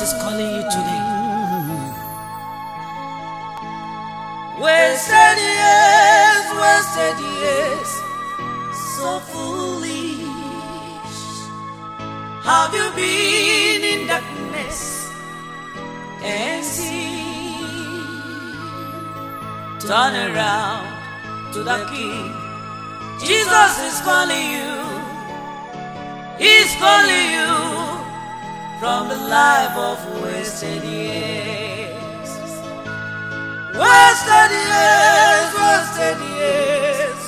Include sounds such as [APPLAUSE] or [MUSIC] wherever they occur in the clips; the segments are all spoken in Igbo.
Jesus is calling you today. Wasted years, wasted years, so foolish. Have you been in darkness and seen? Turn around to the King. Jesus is calling you. He's calling you. from the life of wasted years. Wasted years, wasted years,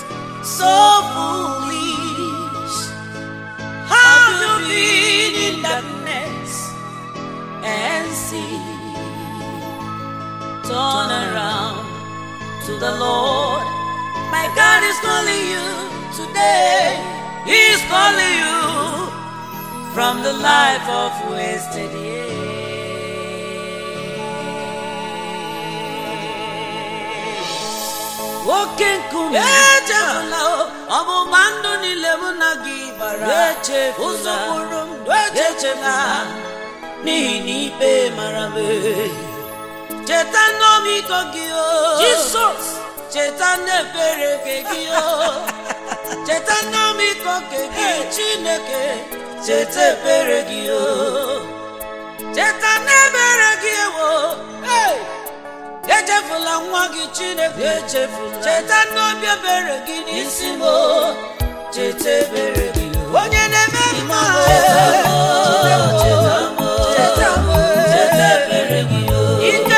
so foolish. How to be in darkness and see. Turn around to the Lord. My God is calling you today. He's calling you. from the life of wasted years. Wokenkumi echefula oh. ọmụma ndụ niile mụ na gị gbara ụzọkwuru m echefula n'ihi na ikpe mara m cheta n'ọmịiko gị o Jizọs cheta n'ebere gị o cheta nnamịkọ nke gị chineke cheta ebere gị o cheta n'ebere gị ewo echefula nwa gị chineke echefula cheta n'obi ebere gị n'isi m cheta ebere gị onye na-eme mma cheta m cheta ebere gị ike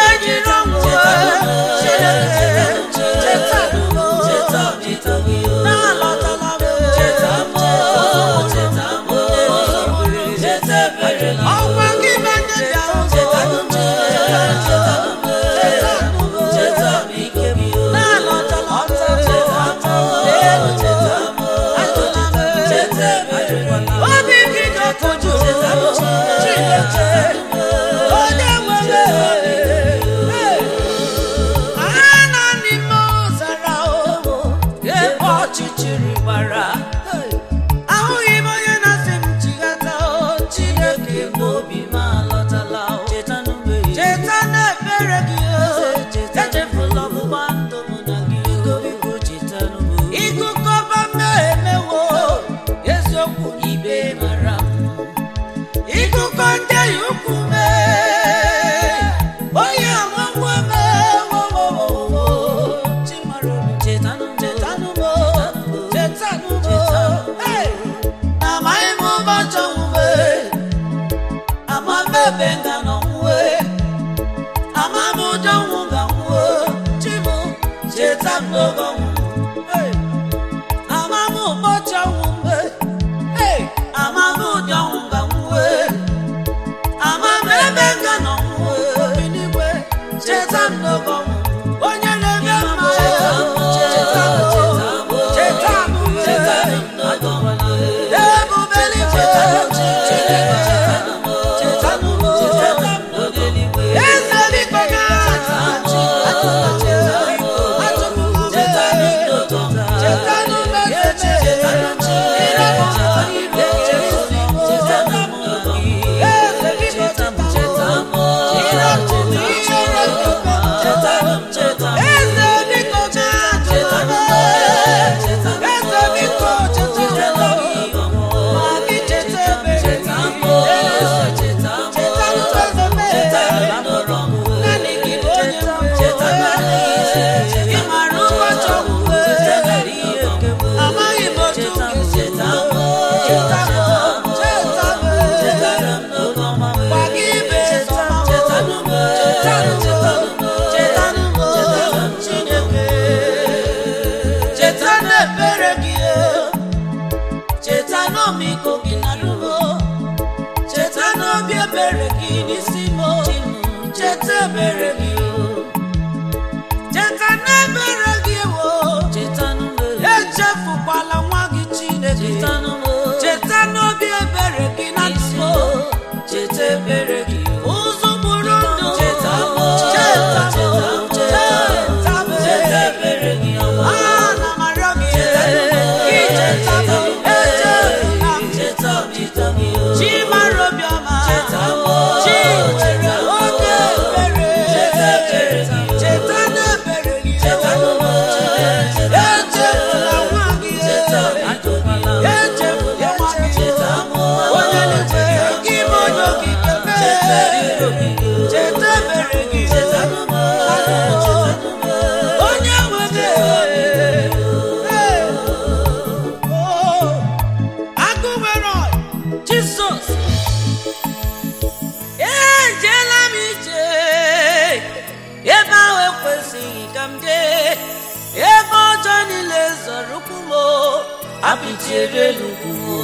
chebe n'ugwu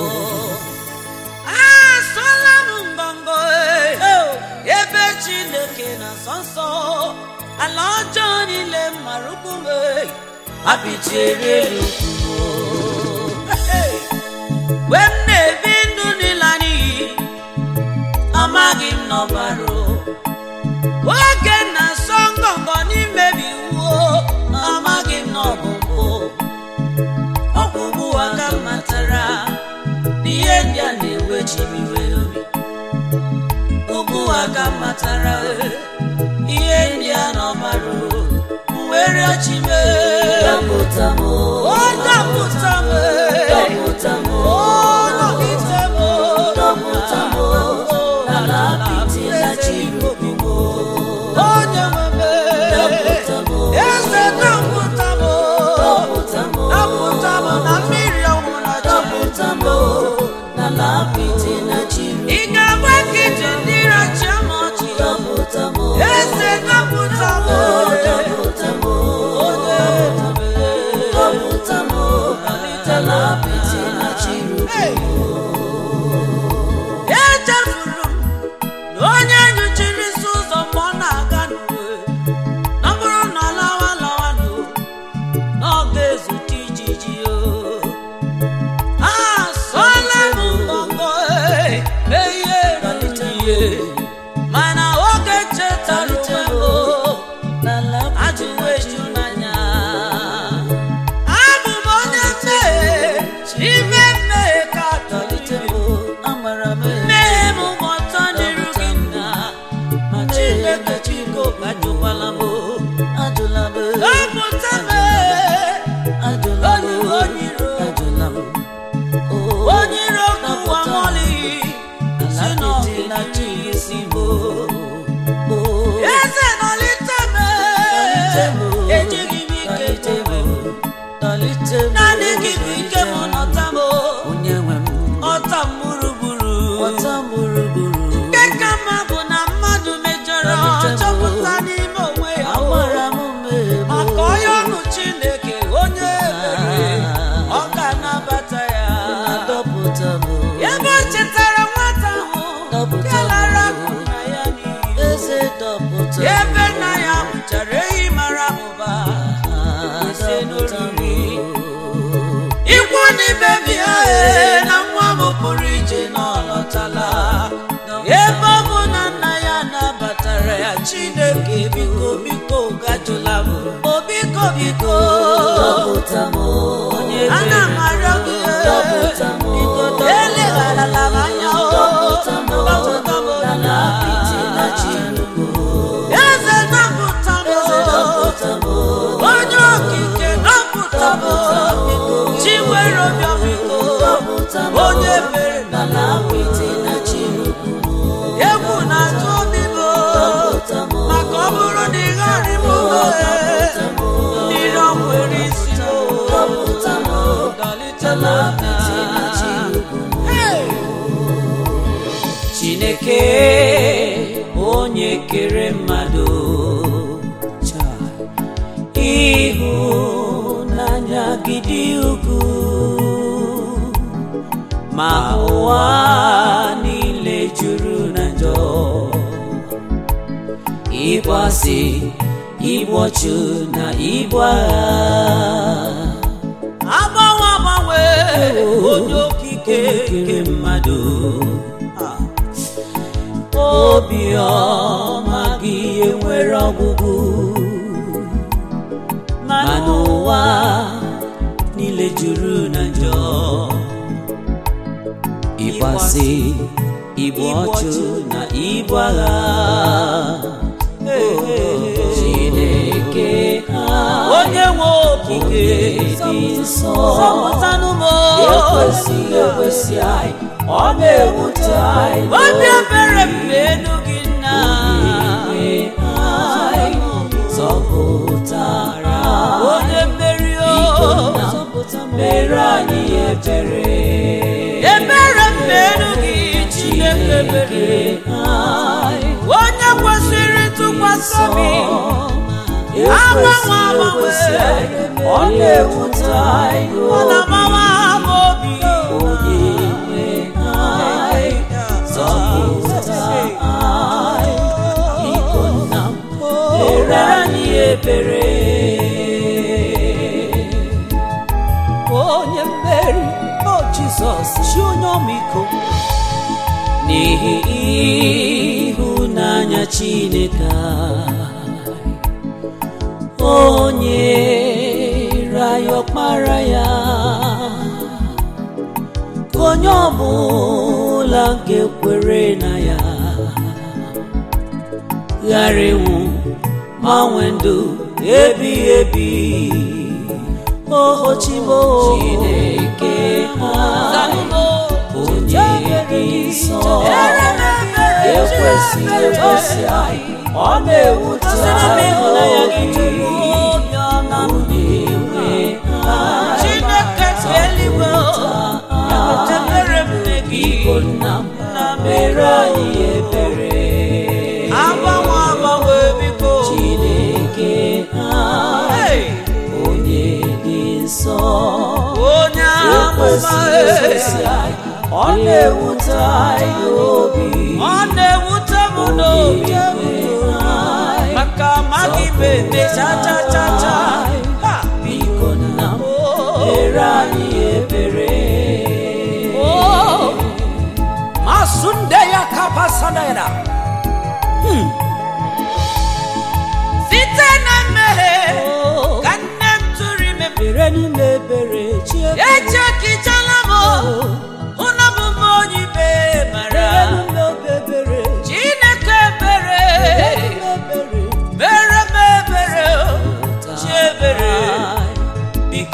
asọla m mbọmbọ ebe chineke na nsọ nsọ ala ọjọọ niile mara ukwu m abichiebe n'ugwu mgbe m na-ebi ndụ n'ịla n'iyi amaghị m na kpatara ihe ndị a nọ mara were ọchịme ọ dapụta m Hey! ee na nwa m pụrụ ije n'ọlọtala ebe ọ bụ na nna ya nabatara ya chineke biko biko gajula m obiko biko ntị ịbụ ọchụ na ịbụ agha agbanwe agbanwe oh, onye okike nke mmadụ ah. obiọma gị enwere ọgwụgwụ mana ụwa niile juru na njọ ịgbasị ịbụ ọchụ na ịbụ agha okike dị nsọ ekwesịghị ekwesị anyị ọ na-ewute anyị obi ebere mgbe elu gị nna anyị zọpụtara onye mmeri o mere anyị ebere ebere mgbe elu gị Chineke mere onye kwesịrị ntụkwasị obi agbanwe agbanwe ọ anyị ọ na obi onye nwe anyị anyị ebere onye o Jizọs chi onye n'ihi Chineke onye raaya ọkpara ya ka onye ọbụla nke ekwere na ya ghara ịnwụ ma nwee ndụ ebighị ebi ohochibo Chineke ha onye dị nsọ ekwesị ekwesị anyị ọ na-ewute ahụ gị onye nwe Chineke na mere onye nsọ onye ọ na-ewute anyị obi ọ na-ewute m n'obi aka ime eme cha cha cha biko nna m anyị ebere ya site na mmehie ka nne m tụrụ ime n'ime ebere chi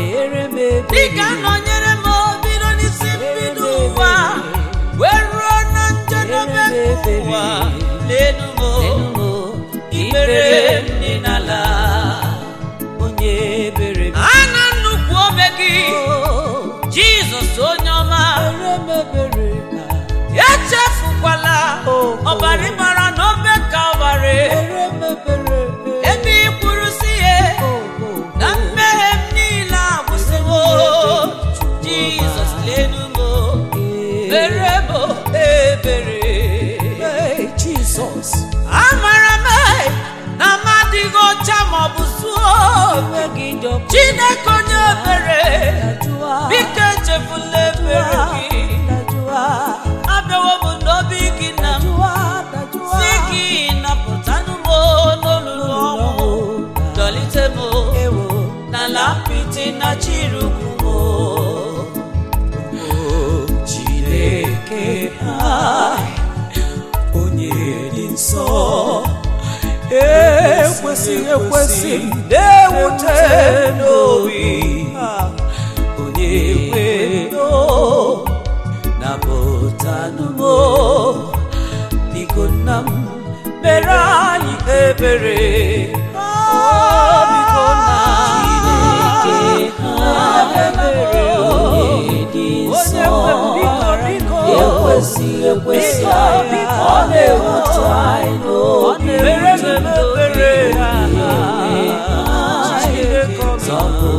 ị ga-anọnyere m obido n'isi mbido ụwa wee ruo na njedebe ụwa n'elu m ikpere dị n'ala onye ebere a na nnukwu ome gị oh. jizọs onye ọma echefukwala oh. ọbara ịmara na obe kalvarị amara m na m adịghị ọcha maọbụ zuo onwe gị chineke onye ebere biko echefula ebere gị abịawo m n'obi gị na m si gị napụtanụ m n'olulu ọnwụ dọlite m na apịtị na chiru ekwesị ekwesị na-ewute n'obi onye kweno napụtanụmo biko nna m mere anyị ebere nna ebere ekwesị ekwesị ọ na-ewute anyị n'obi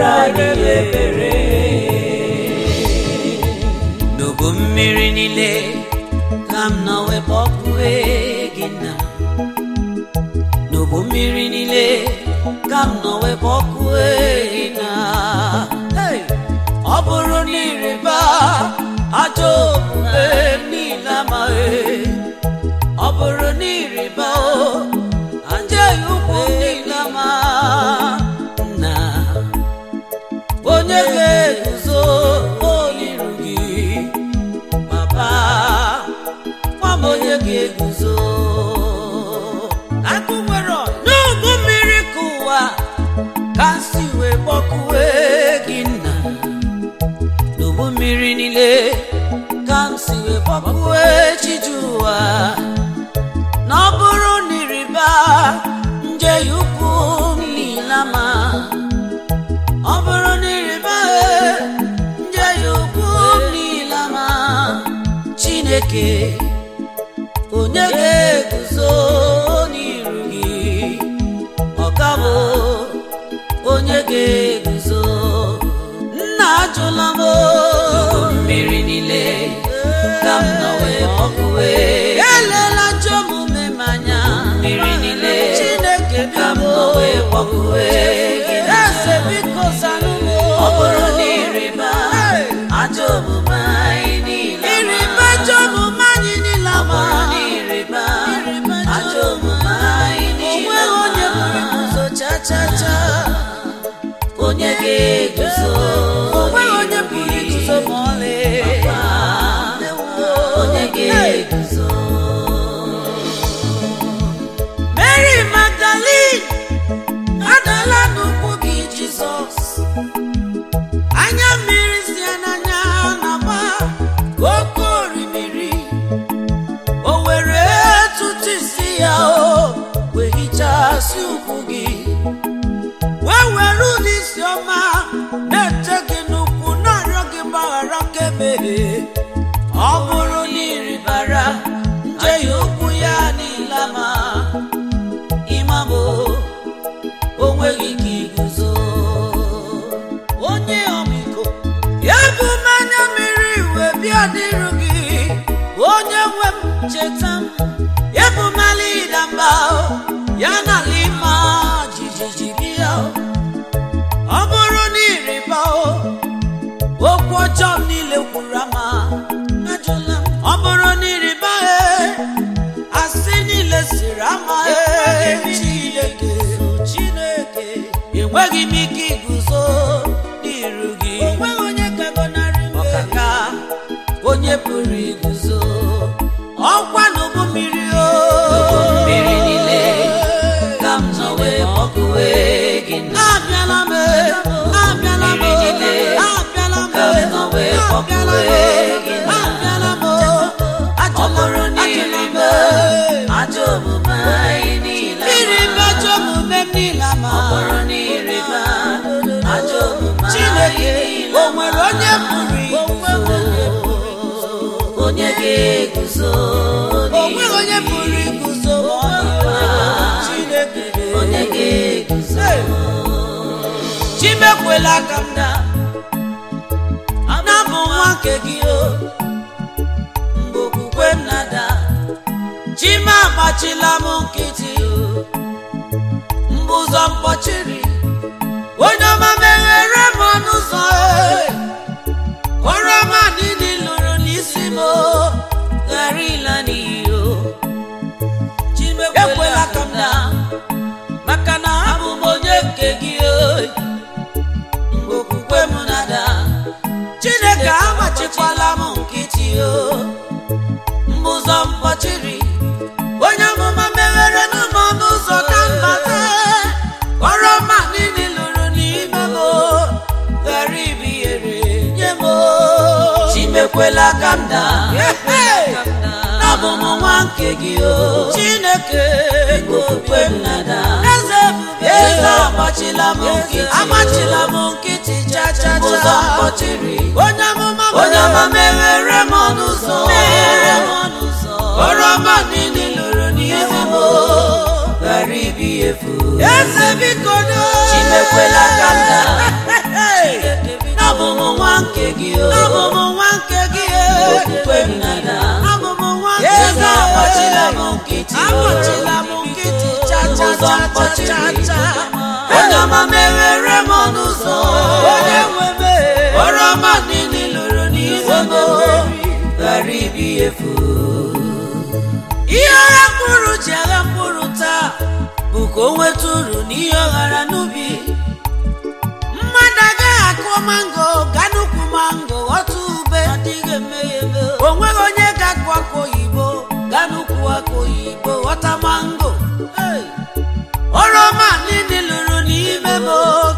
mere anyị mmiri niile ka m ọkụ gị na n'ubu mmiri niile ka m nọ wepụ ọkụ gị na ọ bụrụ na ịrịba ajọ omume niile amaghị onye ga-eguzo akụ mmiri ka ụwa ka si wee gị nna n'ubu mmiri niile ka m si wee gbọkụwe chiji ụwa na ọ bụrụ nje ukwu niile ọbụrụ ọ bụrụ nje ukwu niile chineke ọ bụrụ na ịrịba omume anyị niile ọ bụrụ na ịrịba na omume onye ga-eguzo okwu ọjọọ niile kwuru ama ọ bụrụ na ịrịba asị niile siri ama Chineke enweghị m ike iguzo n'iru gị ọkaka onye pụrụ iguzo Chimekwela ka m daa nke gị o mgbe okwukwe m nada chima agbachila m nkịtị o mgbe ụzọ mkpọchiri onye ọma meghere m ọnụ ụzọ e. kọrọ ma dị lụrụ n'isi m ghara ịla n'iyi o ekwela ka m na maka na abụ m onye nke gị o mgbe okwukwe m nada emechiela m nkịtị o mbụzọ mkpọchiri onye amụma meghere n'ụmụ ọnụ ụzọ ka mbata kpọrọ ma niile lụrụ n'ime m ghara ibighere nye m chimekwela ka m daa abụ m nwa nke gị o chineke okwukwe m nada amachila m nkịtị amachila m nkịtị chachacha ụzọ mkpọchiri onye meghere m n'ụzọ meghere m ọrụ ọma niile lụrụ n'ihu m ghara ibi efu eze biko chimekwela ka [LAUGHS] m nwa nke gị abụ nwa nke gị e. okwukwe m e. amachila m nkịtị amachila n'ụzọ mkpọchiri onye ọma meghere m n'ụzọ onye nwebe ọrụ ọma niile lụrụ n'ihu m ghara ibi efu ihe ọra mkpụrụ ji agha mkpụrụ taa bụ ka o nweta uru n'ihe ọ ghara n'ubi mmadụ agaghị akụọ mango ga n'ukwu mango ghọta ube adịghị emeghe o nweghị onye ga-akụ akụ oyibo ga n'ukwu akụ oyibo ghọta mango oroma niile lụrụ n'ime m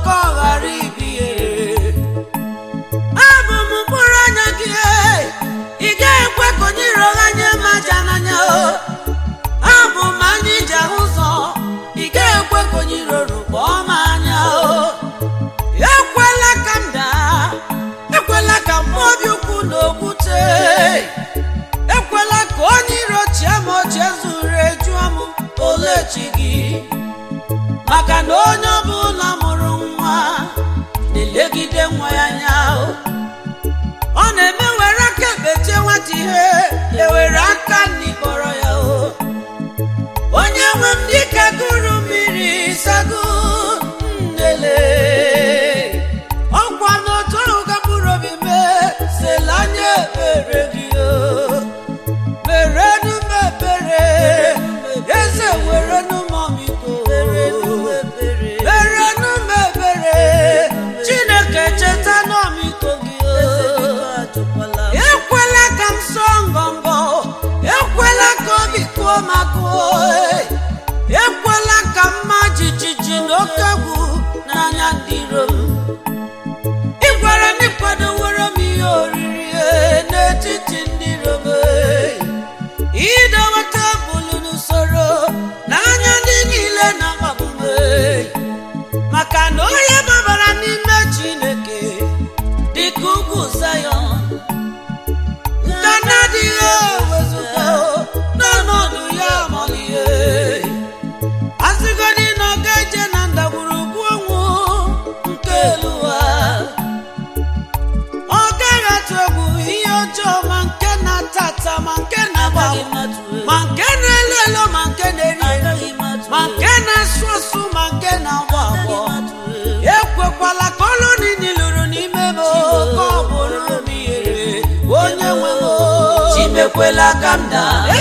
ekwela ka m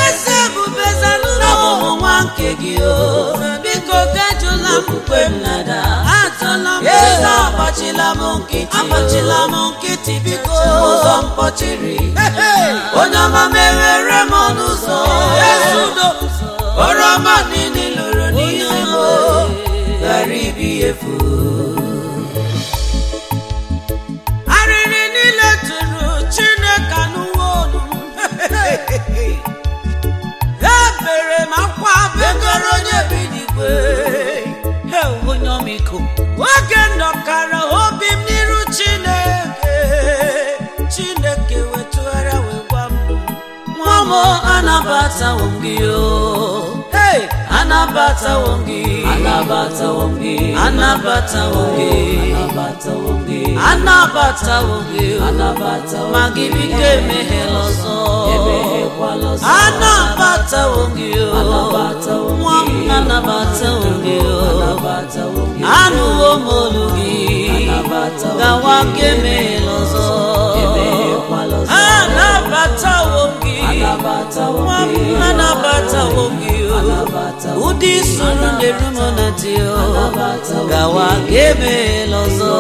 eze ọmụmụ nwa nke gị o biko gajụla m mkpe m nada atụla m eze nkịtị m nkịtị biko ụzọ mkpọchiri onye ọma mewere m ọnụ ụzọ ọma niile lụrụ n'ihe o ghara ibi efu mama anabatawo gị hey anabatawo gị anabatawo gị anabatawo anabatawo anabatawo anabatawo ma gị bido emeghela ọzọ anabatawo gị nwa m anabatawo gị anụwo m olu emeghela ọzọ anabata nwoke oh. ụdị isoro na-eru m na di oh. gawa ga emeghela ọzọ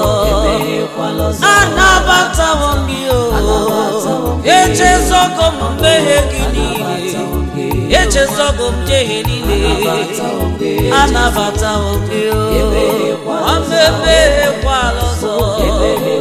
anabatawo gị oh. echezọgo m mmehie gị niile echezọgo m jehie niile anabatawo gị o ọ mebeghekwa ọzọ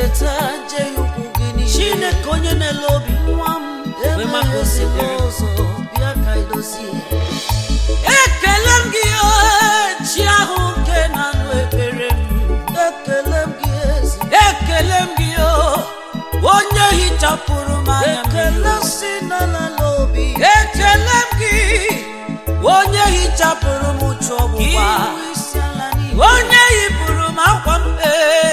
cheta jee ukwu gị niile chineke onye na-ele obi nwa m maka ụzọ bịa ka idozie ekele m gị chi ahụ nke na-anụ ekpere m ekele m gị eze ekele m gị onye hichapụrụ m anya ekele si n'ala n'obi ekele m gị onye hichapụrụ m onye yipụrụ m akwa mkpee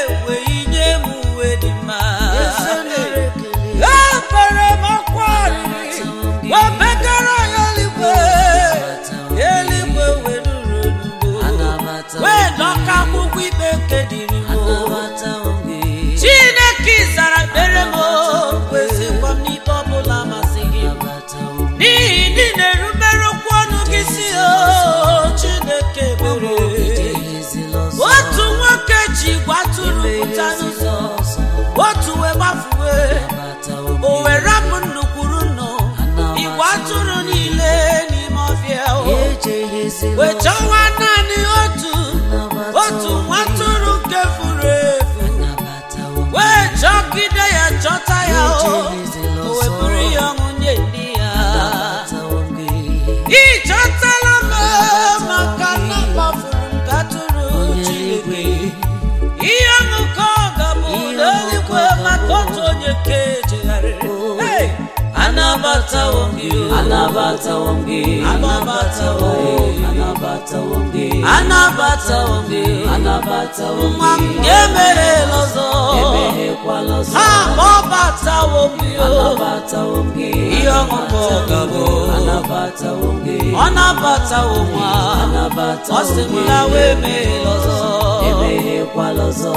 wee anabata wonge nwa m lọzọ ọzọ ha ihe ọṅụkọ ọ ọ sị m ya wee lọzọ ọzọ emeghekwala ọzọ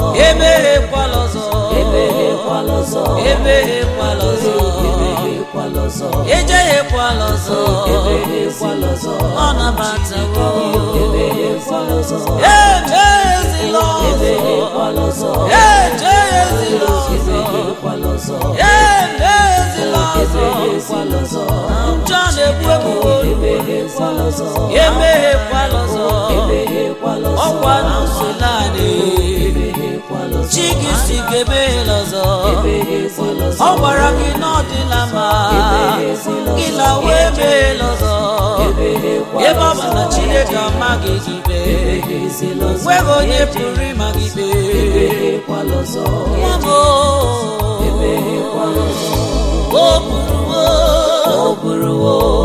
emeghekwala ọzọ emeghekwala ọzọ ejeghịkwala ọzọ ọ nabatawo ejeghezila ọzọ e njọ na abata ọzọ ọkwa adịghị chi gị si ka ebeghela ọ gwara gị na ọdịla ma gị lawa ebeghela ọzọ ebe ọ bụ na chineke ọma gị gibe nweghị onye pụrụ ịma gị be o bụrụ o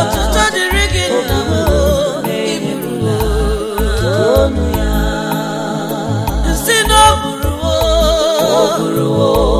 ọtụtụ dịrị gị nna m iburu nsị na o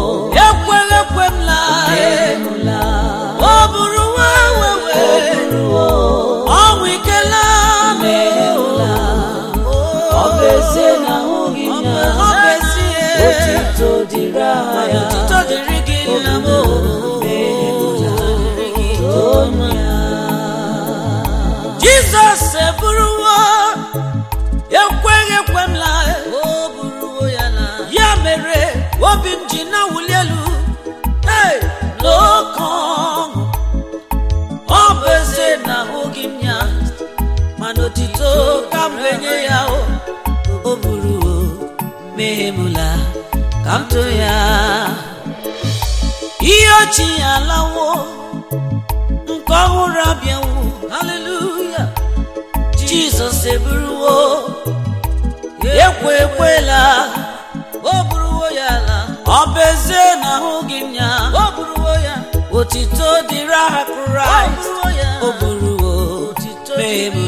onye ya o buru o mehemula ka m tụ ya ihe ochie alawo nke ọhụrụ abịanwu haleluya jizọs eburuwo ekwe ekwela o buruwo ya ala ọ bụ ezie na ahụ gị nya oburuwo ya otito dịrị aha kraịst o buruwo mehemula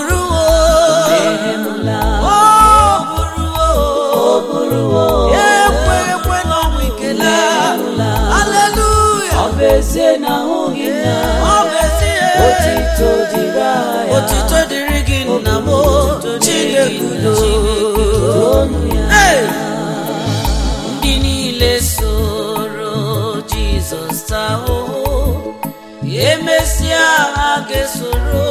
ise na ahụghị nna otito dịrị aha otito dịrị gị nna ndị niile soro jizọs ahụhụ emesịa ha ga-esoro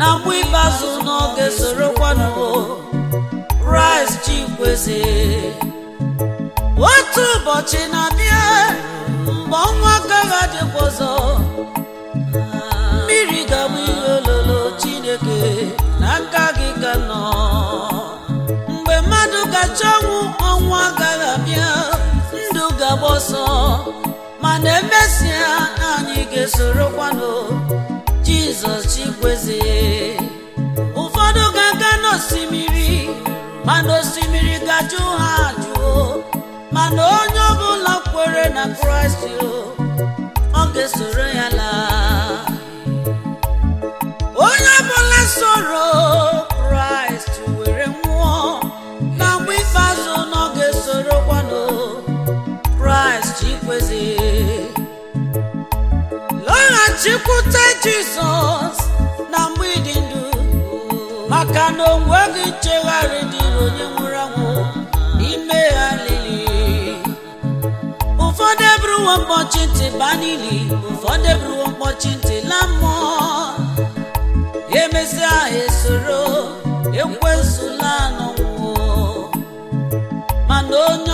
na mbụ ikpeazụ n'oge sorokwanụ rice chikweze otu ụbọchị na-abịa mgbe ọnwa agaghị adịkwa ọzọ mmiri ga-abụ ihe ololo chineke na nka gị ka nọ mgbe mmadụ gacha ọnwụ ọnwa agaghị abịa ndụ ga-agba ọsọ mana emesịa anyị ga-esorokwanụ jizọs chigweze ụfọdụ ga-aga n'osimiri mana osimiri ga-ajụ ha ajụo mana onye ọbụla kwere na kraịst ọ ga-esoro ya laa onye ọbụla soro chịkwute jizọs na mgbidi ndụ maka na onwe gị nchegharị dịrị onye nwụrụ anwụ ime ya lili ụfọdụ eburuwo mkpọchi ntị baa n'ili ụfọdụ eburuwo mkpọchi ntị la mmụọ emesịa ha esoro ekwensụla mana onye